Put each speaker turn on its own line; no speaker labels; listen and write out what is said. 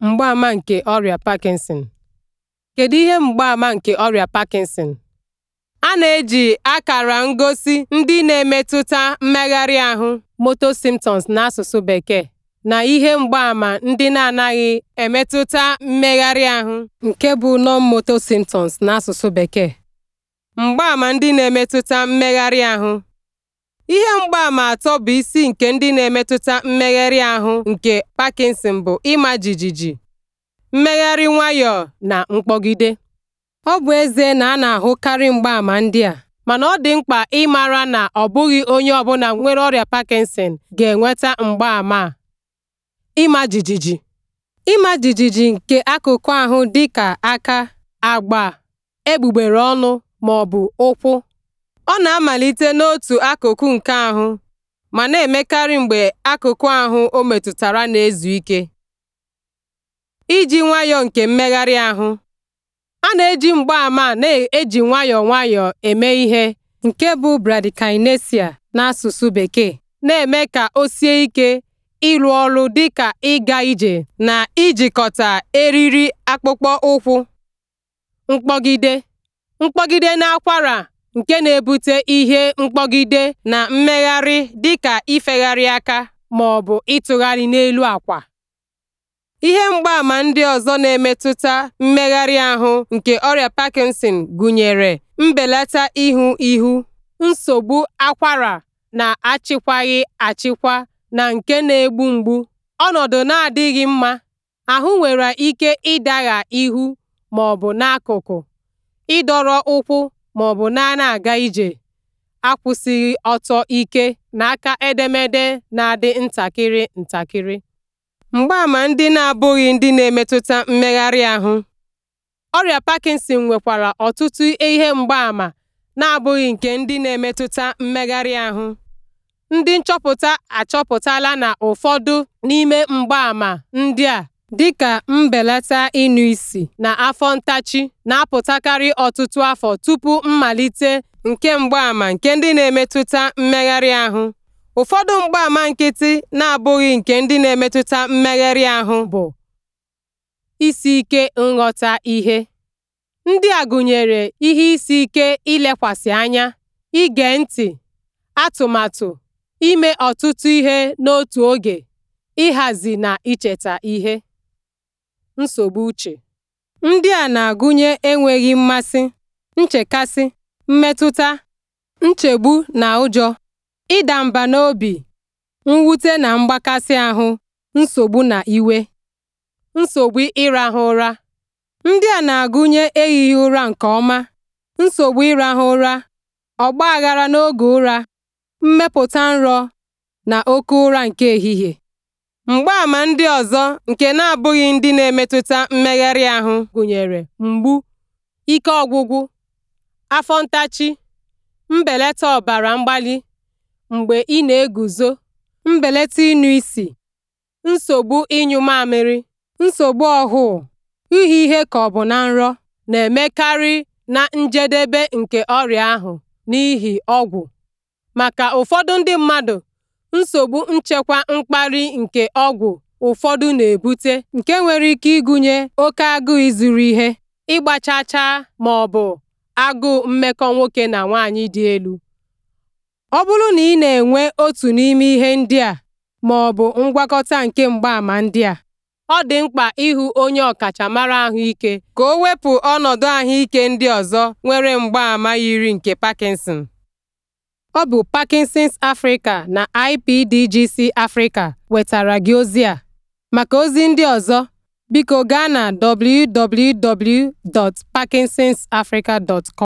Mgbaama nke Ọrịa Parkinson Kedu ihe mgbaama nke ọrịa Parkinson? A na-eji akara ngosi ndị na-emetụta mmegharị ahụ (motor symptoms n'asụsụ Bekee) na ihe mgbaama ndị na-anaghị emetụta mmegharị ahụ nke bụ non-motor symptoms n'asụsụ Bekee. Mgbaama ndị na-emetụta mmegharị ahụ Ihe mgbaàmà atọ bụ isi nke ndị na-emetụta mmegharị ahụ nke Parkinson bụ ịma jijiji, mmegharị nwayọọ na mkpọgide. Ọ bụ eze na a na-ahụkarị mgbaàmà ndị a, mana ọ dị mkpa ịmara na ọ bụghị onye ọbụla nwere ọrịa Parkinson ga-enweta mgbaàmà a. Ịma jijiji Ịma jijiji nke akụkụ ahụ dịka aka, agba, egbugbere ọnụ maọbụ ụkwụ Ọ na-amalite n'otu akụkụ nke ahụ ma na-emekarị mgbe akụkụ ahụ o metụtara na-ezu ike. Iji nwayọọ nke mmegharị ahụ, a na-eji mgbaàmà a na-eji nwayọọ nwayọọ eme ihe nke bụ bradykinesia n'asụsụ Bekee, na-eme ka o sie ike ịrụ ọrụ dịka ịga ije na ijikọta eriri akpụkpọ ụkwụ. Mkpọgide. Mkpọgide n'akwara nke na-ebute ihe mkpọgide na mmegharị dịka ifegharị aka ma ọ bụ ịtụgharị n'elu akwa. Ihe mgbaàmà ndị ọzọ na-emetụta mmegharị ahụ nke ọrịa Parkinson gụnyere mbelata ihu ihu, nsogbu akwara na-achịkwaghị achịkwa na nke na-egbu mgbu, ọnọdụ na-adịghị mma, ahụ nwere ike ịdagha ihu ma bụ n'akụkụ, ịdọrọ ụkwụ ma ọ bụ na na aga ije akwụsịghị ọtọ ike n'aka edemede na-adị ntakịrị ntakịrị. mgbaama ndị na-abụghị ndị na-emetụta mmegharị ahụ Ọrịa Parkinson nwekwara ọtụtụ ihe mgbaama na-abụghị nke ndị na-emetụta mmegharị ahụ. Ndị nchọpụta achọpụtala na ụfọdụ n'ime mgbaàmà ndị a dịka mbelata ịnụ isi na afọ ntachi na-apụtakarị ọtụtụ afọ tupu mmalite nke mgbaàmà nke ndị na-emetụta mmegharị ahụ. Ụfọdụ mgbaàmà nkịtị na-abụghị nke ndị na-emetụta mmegharị ahụ bụ isi ike nghọta ihe. Ndị a gụnyere ihe isi ike ilekwasị anya, ige ntị, atụmatụ, ime ọtụtụ ihe n'otu oge, ịhazi na icheta ihe. nsogbu uche. Ndị a na-agụnye enweghị mmasị, nchekasị, mmetụta, nchegbu na ụjọ, ịda mba n'obi, mwute na mgbakasị ahụ, nsogbu na iwe. Nsogbu ịrahụ ụra. Ndị a na-agụnye ehighị ụra nke ọma, nsogbu ịrahụ ụra, aghara n'oge ụra, mmepụta nrọ, na oke ụra nke ehihie. Mgbaàmà ndị ọzọ nke na-abụghị ndị na-emetụta mmegharị ahụ gụnyere mgbu, ike ọgwụgwụ, afọ ntachi, mbelata ọbara mgbali mgbe ị na-eguzo, mbelata ịnụ isi, nsogbu ịnyụ mamịrị, nsogbu ọhụụ, ihe ihe ka ọ bụ na nrọ, na-emekarị na njedebe nke ọrịa ahụ n'ihi ọgwụ. Maka ụfọdụ ndị mmadụ, nsogbu nchekwa mkpali nke ọgwụ ụfọdụ na-ebute nke nwere ike ịgụnye oke agụụ ịzụrụ ihe, ịgba chaa chaa bụ agụụ mmekọ nwoke na nwaanyị dị elu. Ọ bụrụ na ị na-enwe otu n'ime ihe ndị a bụ ngwakọta nke mgbaàmà ndị a, ọ dị mkpa ịhụ onye ọkachamara ahụike ka o wepụ ọnọdụ ahụike ndị ọzọ nwere mgbaàmà yiri nke Parkinson. Ọ bụ Parkinson's Africa na IPDGC Africa wetara gị ozi a. Maka ozi ndị ọzọ, biko gaa na www.parkinsonsafrica.com.